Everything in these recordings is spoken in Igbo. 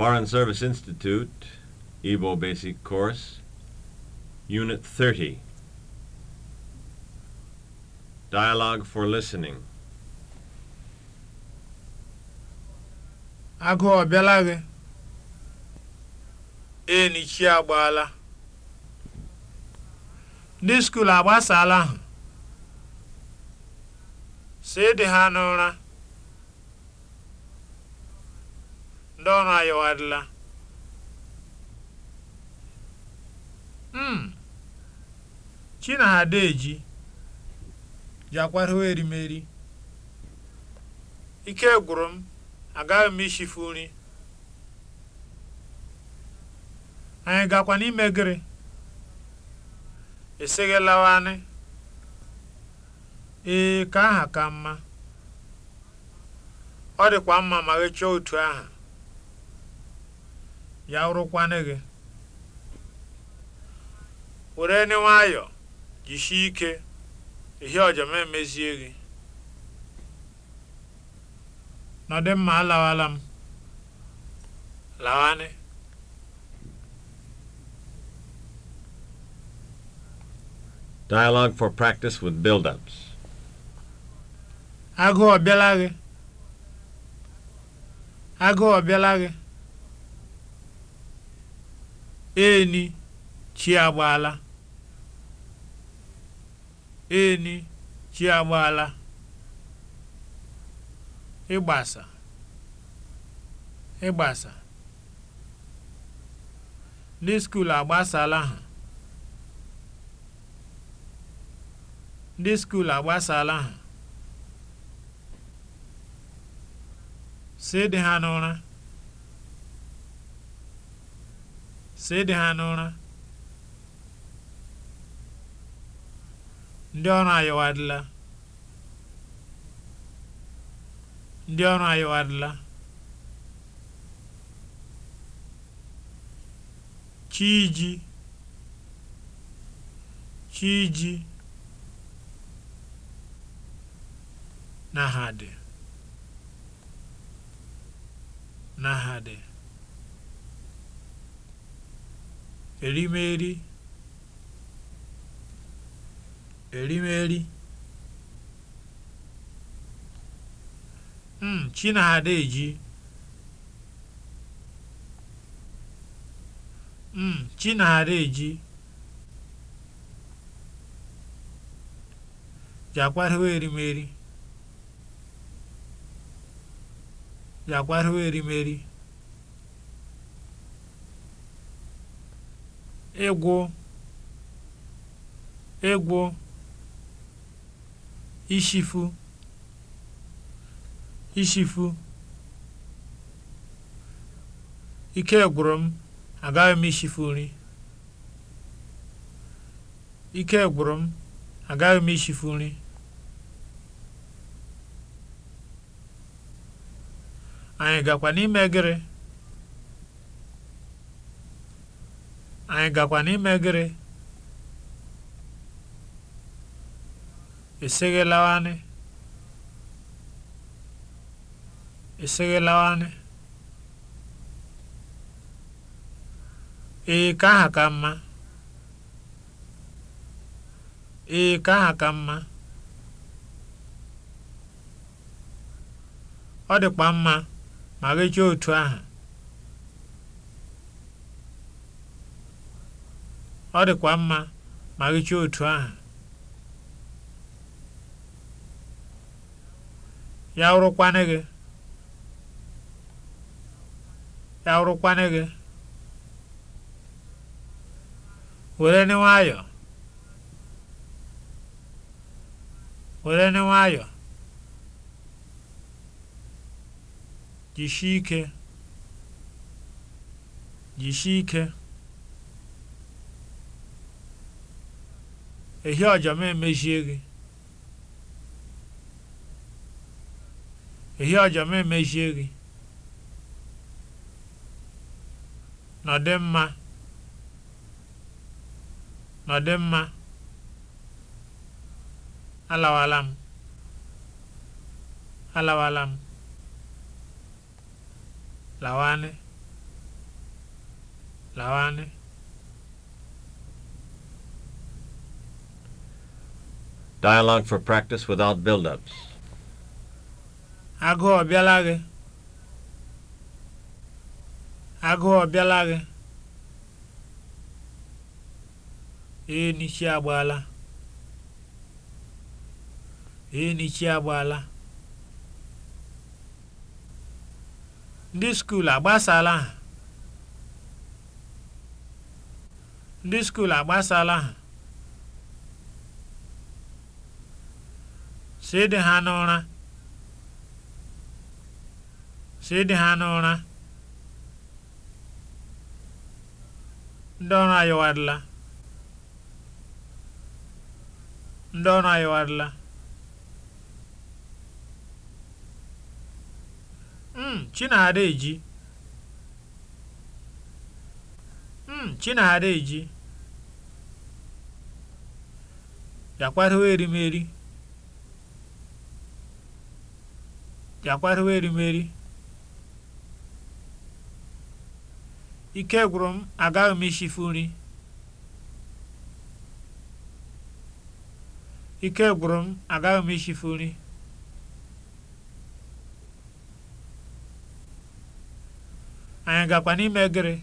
Foreign Service Institute, Igbo Basic Course, Unit 30. Dialogue for Listening. Agụ ọ bịala gị? Eni chi agbaala. Ndị skuul agbasaala ahụ. Si dị ha n'ụra. ndị ọrụ anyị adịla m hmm. Chinadeji ji hụ erimeri ike gwụrụ m agaghị m ishifu nri anyị gakwa n'ime gịrị eseghelawanị ee ka aha ka mma ọ dịkwa mma ma ghechaa otu aha ya wụrụkwanụ gị were ni nwayọ jisie ike ihe ọjọma emezie gị nọdụ mma alawala m lawanị Dialogue for practice with build-ups. Agụụ ọ bịala gị? Agụụ ọ bịala gị? eni chi agbaala eni chi agbaala ịgbasa ịgbasa ndị skuul agbasala ha ndị skuul agbasala ha si dị ha n'ụra si ịdị ha n'ụra ndị ọrụ ayịwadịla ndị ọrụ ayịwadịla chiji chiji na ha dị na ha dị erimeri erimeri mm, Chinada eji mm, Chinada eji jakwarịwa erimeri jakwarịwa erimeri ịgwụ ịgwụ ishifu ishifu ike gwụrụ m agaghị m ishifu nri ike gwụrụ m agaghị m ishifu nri anyị gakwa n'ime gịrị anyị gakwa n'ime gịrị esighị lawanị esighị lawanị ee ka aha ka mma ee ka aha ka mma ọ dịkwa mma ma gị chọọ otu aha ọ dịkwa mma ma gị otu ahụ ya wụrụkwanụ gị ya wụrụkwanụ gị were nị nwayọọ were nị nwayọọ jisie ike jisie ike ehi ọja m emechie gị ehi ọja m emechie gị nọdị mma nọdị mma alawala m alawala m lawanị lawanị Dialogue for practice without build-ups. Agụụ ọ bịala gị? Agụụ ọ bịala gị? Ee, n'ichi agbaala. Ee, n'ichi agbaala. Ndị skuul agbasala ha? Ndị skuul agbasala ha? sịdị ha n'ụra sịdị ha n'ụra ndị ọrụ ayọwarịla ndị ọrụ ayọwarịla mm chinada eji mm chinada eji ya kwatụwa erimeri bịakwarịwa erimeri ike gwụrụ m agaghị m ishifu nri ike gwụrụ m agaghị m ishifu nri anyị gakwa n'ime gịrị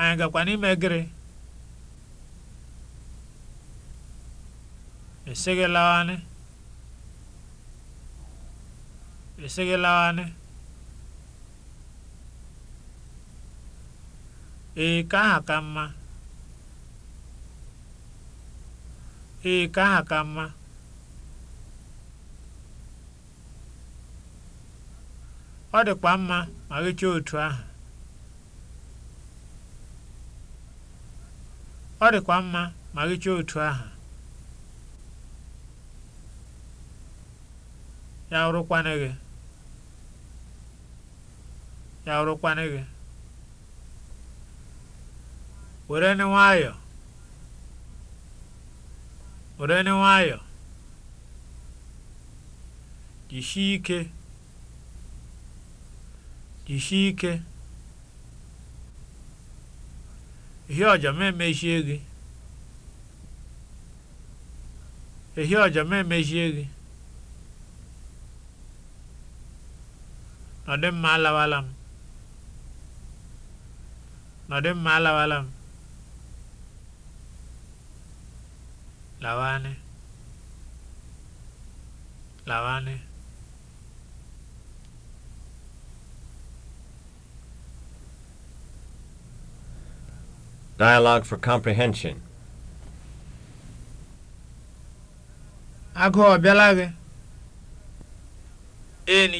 anyị gakwa n'ime gịrị eseghelawanị ee eh, ka aha ka mma ee eh, ka aha ka mma ọ dịkwa mma ma gịchaa otu ahụ ọ dịkwa mma ma gịchaa otu ahụ ya rụkwana gị ya rụkwana gị were ni nwayọ were ni nwayọ jisie ike jisie ike ihe ọjọ ma emechie gị ihe ọjọ ma emechie gị ọ mma alawala m Nọ dị mma alawala m. Lawanị. Lawanị. Dialogue for comprehension. Agụ ọ bịala gị?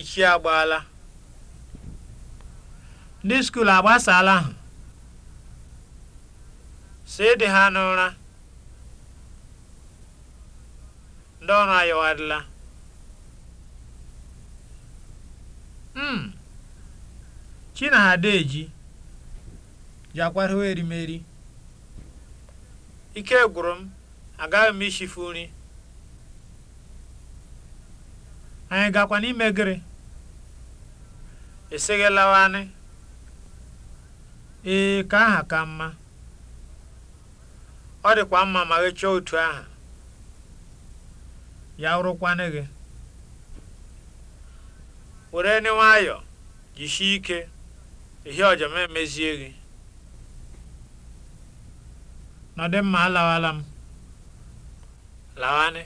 chi agbaala. Ndị skuulu agbasaala ahụ. si dị ha n'ụra ndị ọrụ ayọwarịla m hmm. Chinadaji jakwarịwa erimeri ike gwụrụ m agaghị m ishifu nri anyị gakwa n'ime gịrị esighị ee ka aha ka mma ọ dịkwa mma ma gị otu aha ya rụkwanụ gị were ni nwayọ jisie ike ihe ọjọma emezie gị nọdị mma alawala m lawanị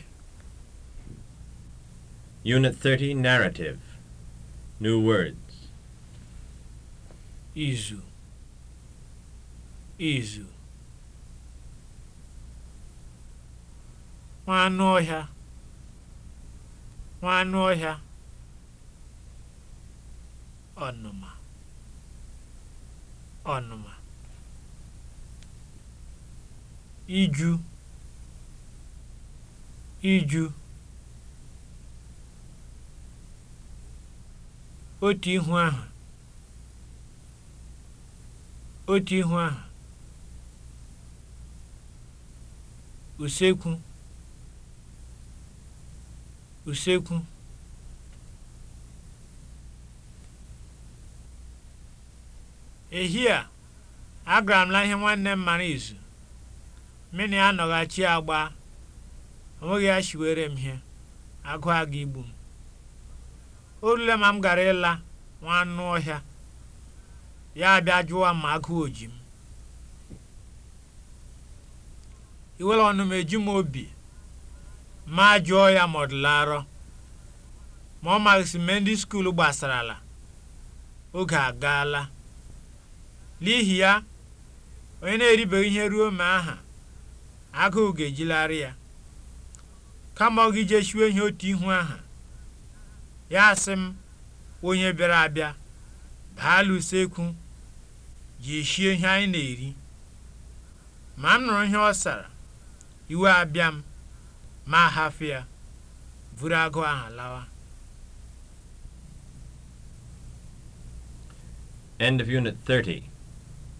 Unit 30 Narrative New Words Izu Izu nwa anụ ọhịa nwa anụ ọhịa ọnụma ọnụma iju iju otu ihu ahụ otu ihu ahụ usekwu usekwu ehi a agara m na ihe nwanne m mara izu mmiri anọghachi agba onweghị ya were m ihe agụ aga igbu m o rule ma m gara ịla nwa ọhịa ya bịa jụwa ma agụ oji m iwere ọnụ m eji m obi ma jụọ ya ma ọ dịla arọ ma ọ maghịsị mee ndị skuul gbasarala oge agaala n'ihi ya onye na-eribeghị ihe ruo ma aha agụụ ga-ejilarị ya kama ọ gị jechiwe ihe otu ihu aha ya asị m onye bịara abịa baala usekwu ji eshie ihe anyị na-eri ma m nụrụ ihe ọ sara iwe abịa m ma hafụ ya buru agụ ahụ lawa End of Unit 30